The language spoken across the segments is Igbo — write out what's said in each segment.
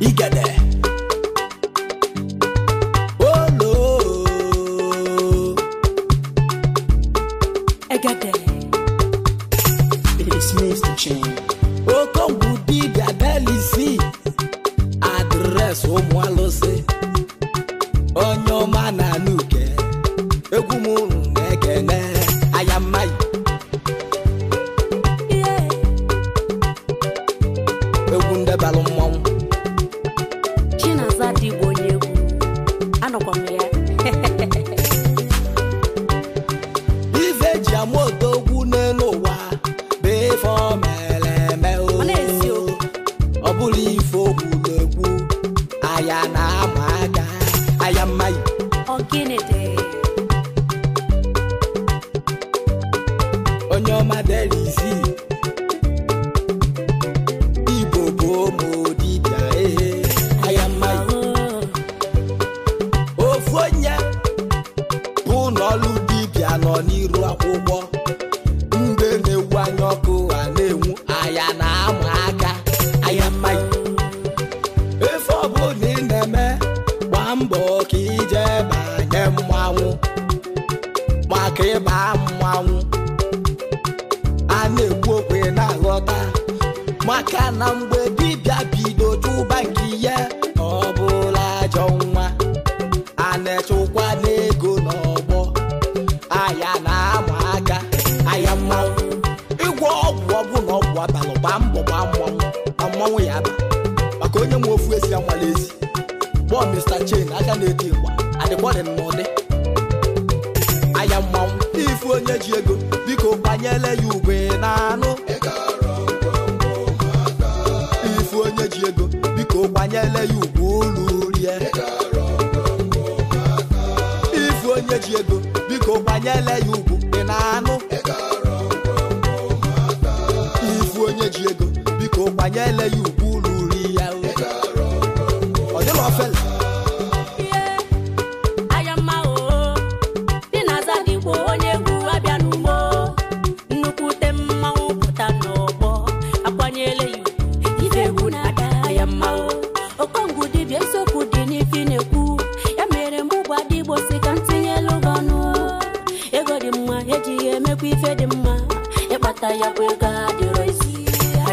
igede olo egede it is Mr. ụmụ alụsị onye ọma na nuke egwu m na-ekene aya mmayi egwu ndebalụ mmụọ ya na-ama aga. aya mmayi onye ọma delizi igbo bụ ụmụ ofu onye bụ n'ọlụ nọ n'iru akwụkwọ agba ka ịba mmanwụ a na-ekwu okwu na-aghọta maka na mgbe dibịa bido tụba nke ihe ọ bụla ajọ nwa a na-echekwa n'ego n'ọgbọ aya na-ama aka aya mmanwụ ịgwọ ọgwụ ọgwụ na ọgwụ abalị gbaa mbọ gba mmanwụ ma mmanwụ ya aba maka onye nwe ofu esi anwala ezi kpọọ Mr. Chain aka na-eti mgba adịkwọdị n'ụdị ifu onye ji ego biko gbanyele ya ugbe na anụ ifu onye ji ego biko gbanyele ya ugwu ụlọ rie ifu onye ji ego biko gbanyele ya ugwu ị na anụ ifu onye ji ego biko gbanyele ya ugwu bụkwa ife dị mma ịkpata ya bụ ego adịrọ isi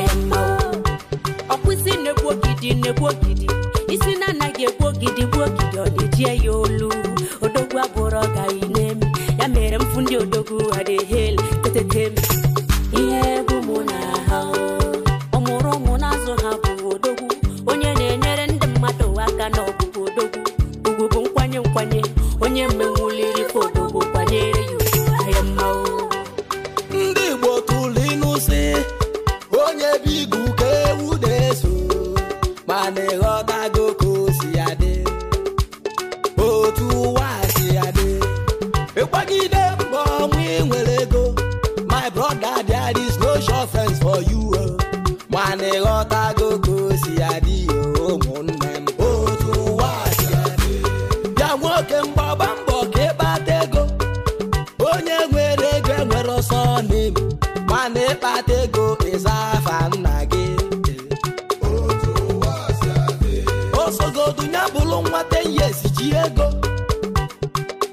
ya mma ọkwụsị na-egbu ogidi na-egbu ogidi isi na anaghị egbu ogidi gbu ogidi ọ na-ejie ya olu odogwu abụrụ ọgaghị na-eme ya mere mfu ndị odogwu ha na-ehel tetetem ebigu ka ewu na-eso mana si adị, otu ụwa si adị. mbọ ịnwere ego my brother there is no sure friends for you oh. mana ịghọtago si ya dị oh, ụmụnne m otu ụwa si ya nwoke mbọ ka ịkpata ego onye nwere ego ọsọ kpata ego ịza afa nna gị osogodu ya bụrụ nwata ihe ji ego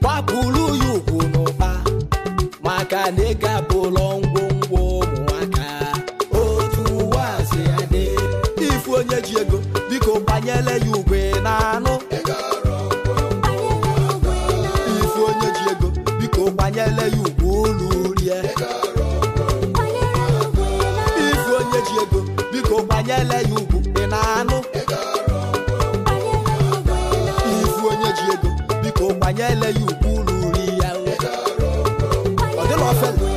gbapụrụ ya ugwu n'ụba. maka na ego bụlọ ngwongwo ụmụaka otu ụwa si ifu onye ji ego biko gbanyere ya ugwe na anụ ifu onye ji ego biko gbanyere ya ugwe onye ele ya ukwu ya